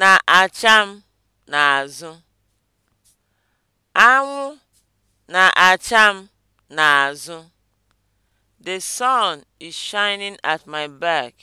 na-acha m n'azụ. Anwụ na-acha m n'azụ. The sun is shining at my back.